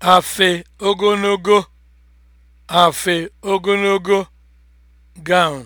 afe ogologo afe ogologo gown